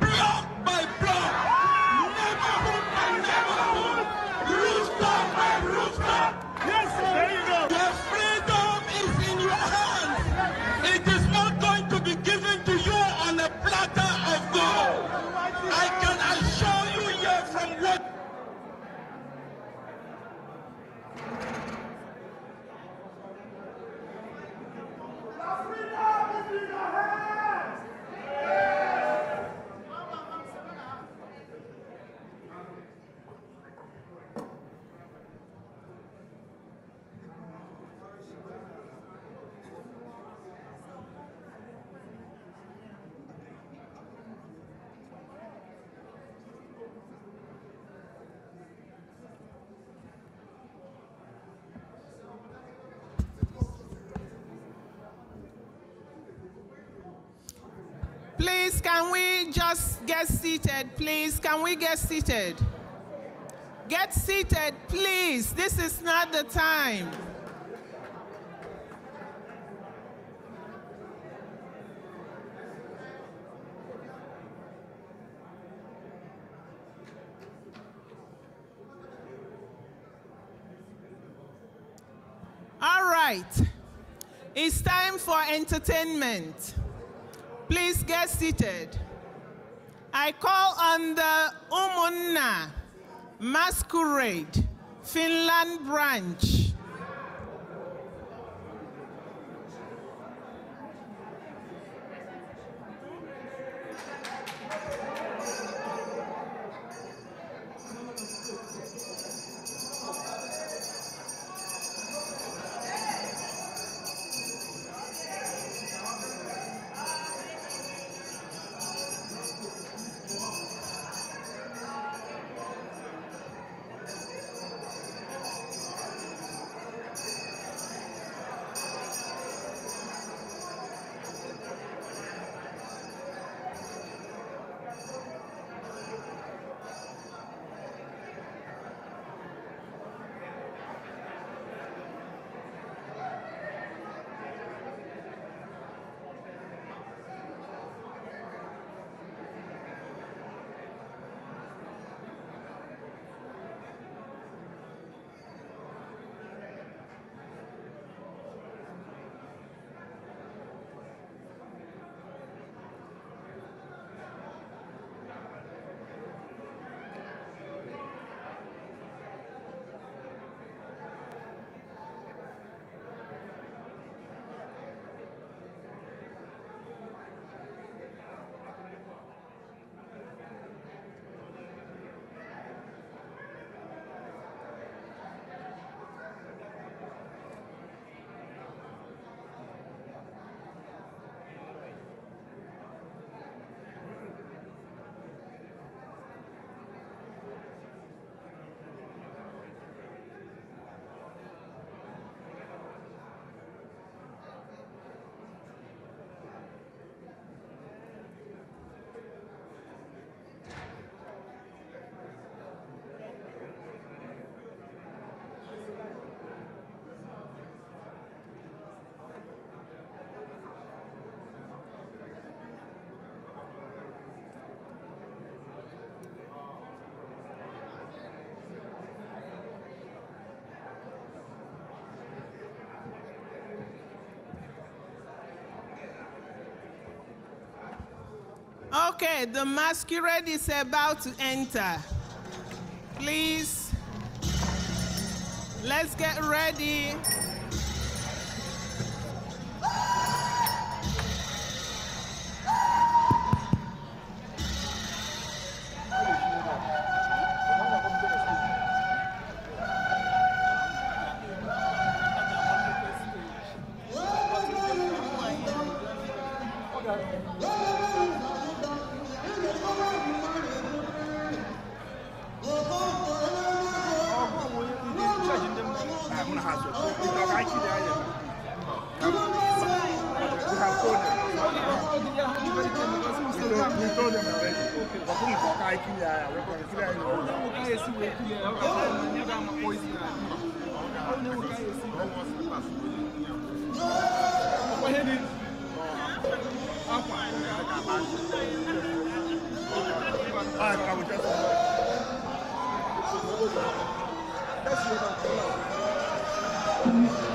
block by block. can we just get seated, please? Can we get seated? Get seated, please. This is not the time. All right. It's time for entertainment. Please get seated. I call on the Umunna Masquerade Finland branch Okay, the masquerade is about to enter. Please, let's get ready. you Oh, you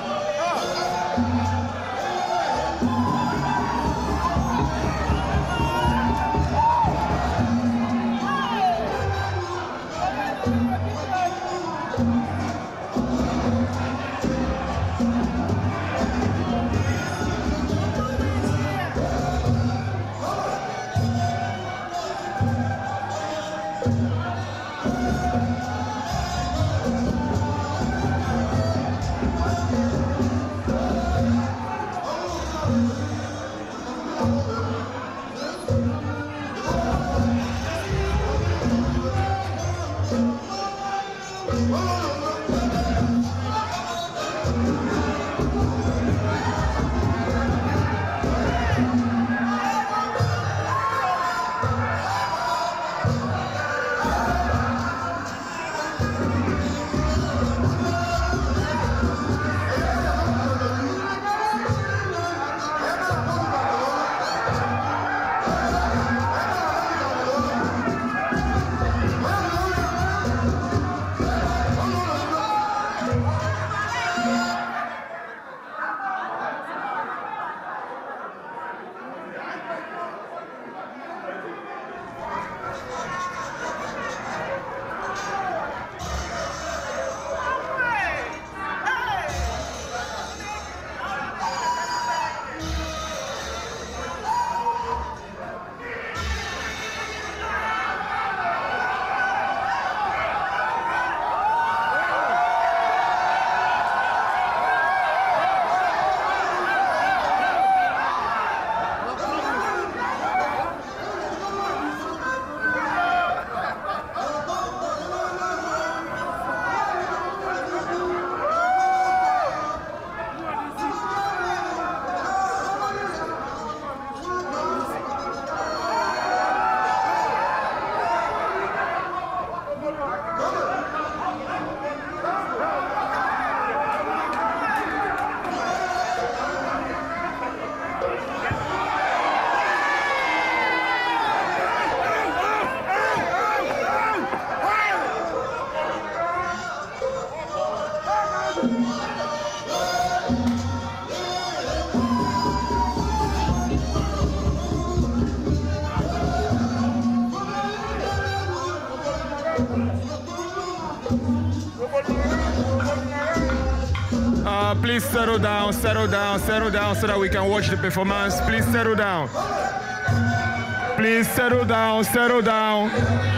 settle down, settle down so that we can watch the performance. Please settle down. Please settle down, settle down.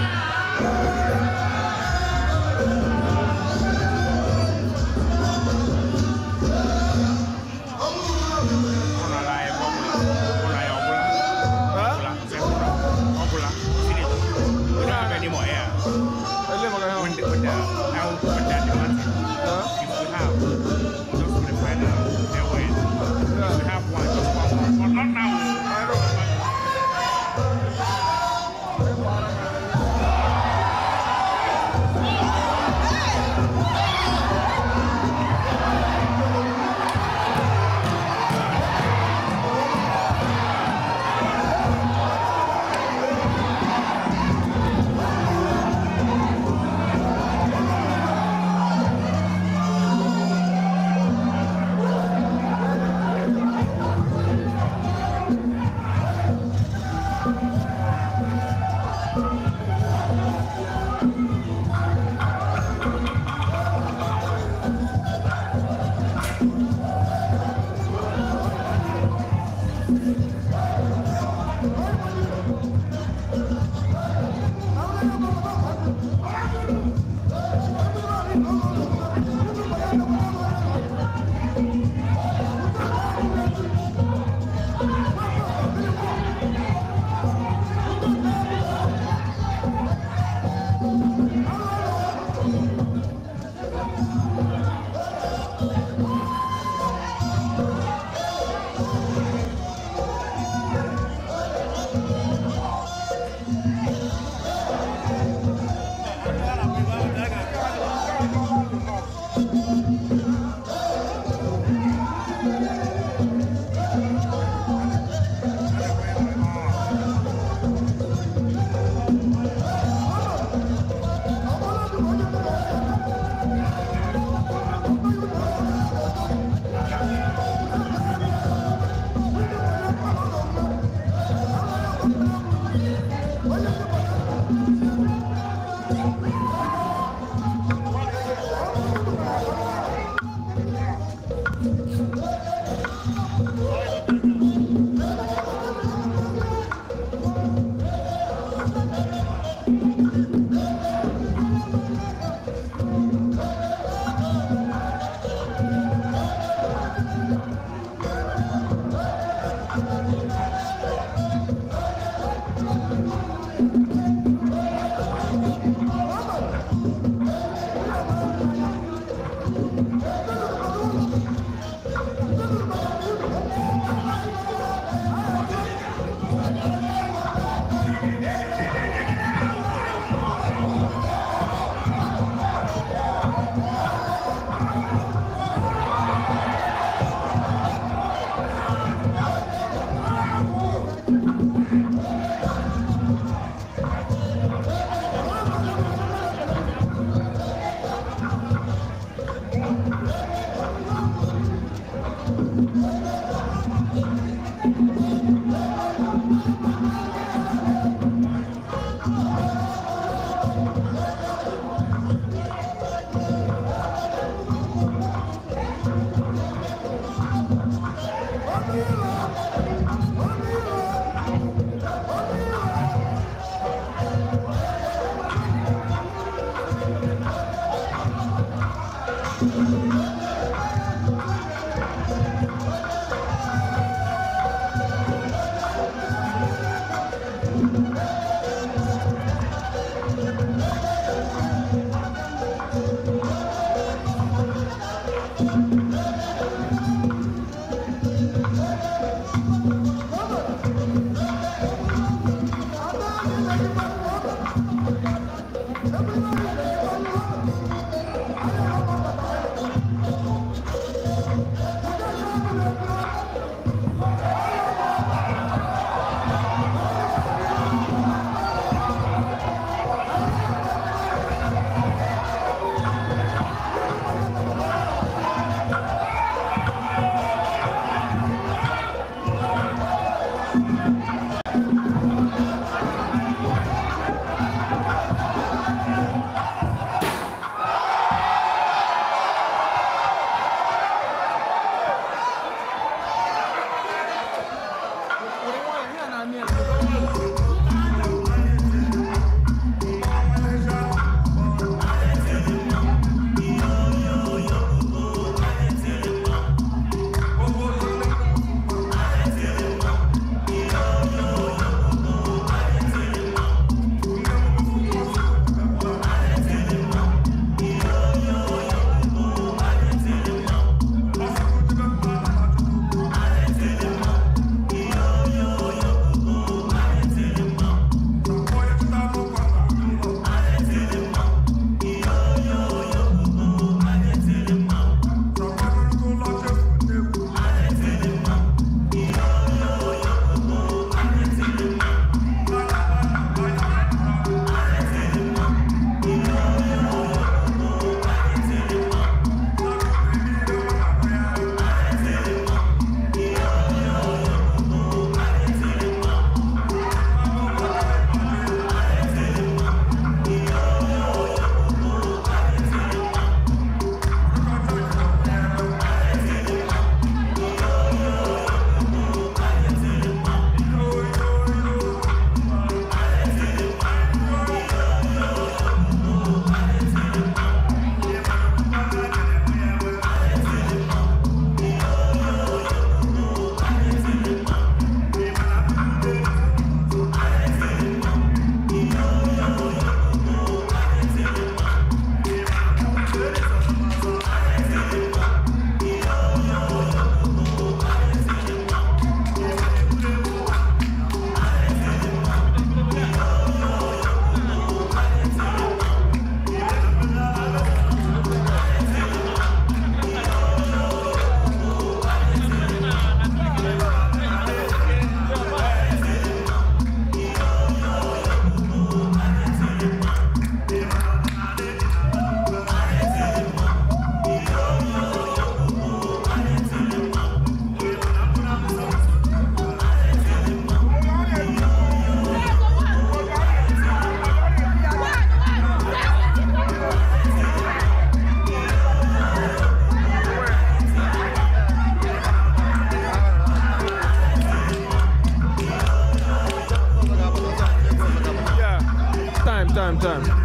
time, time.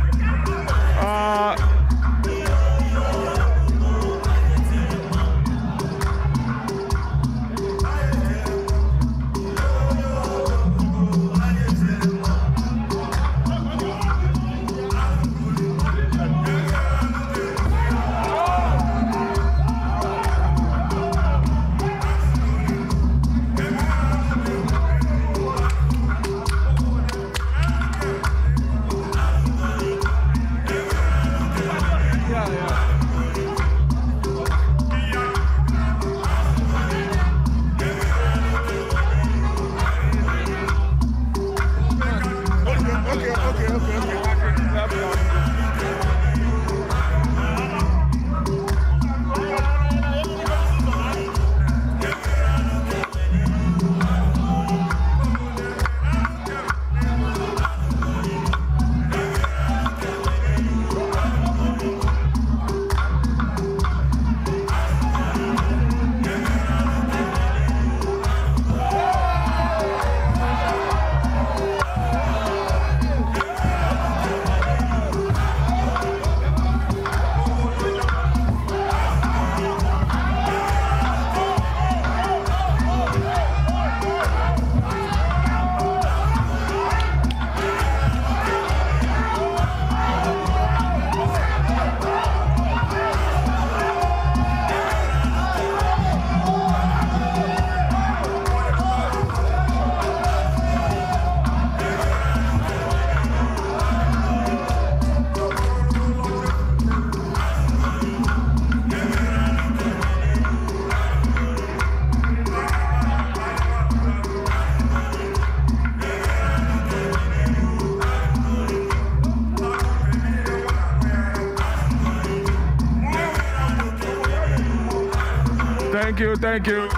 Thank you.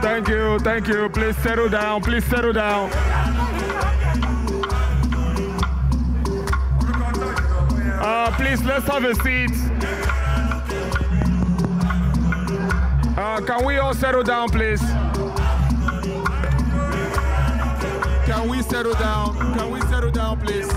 Thank you. Thank you. Please settle down. Please settle down. Uh, please, let's have a seat. Uh, can we all settle down, please? Can we settle down? Can we settle down, please?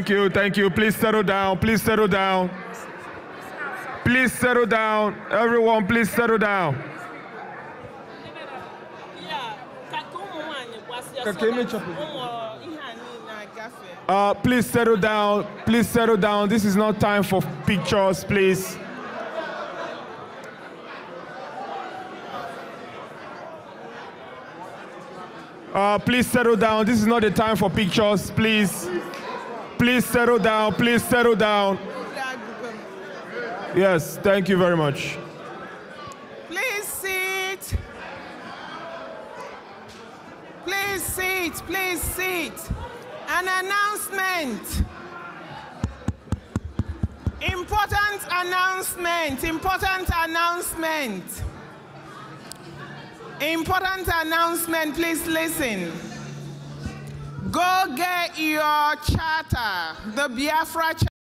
Thank you, thank you. Please settle down, please settle down. Please settle down. Everyone, please settle down. Uh, please settle down. Please settle down. This is not time for pictures, please. Uh, please settle down. This is not the time for pictures, please. Please settle down. Please settle down. Yes, thank you very much. Please sit. Please sit. Please sit. An announcement. Important announcement. Important announcement. Important announcement. Please listen. Go get your charter, the Biafra charter.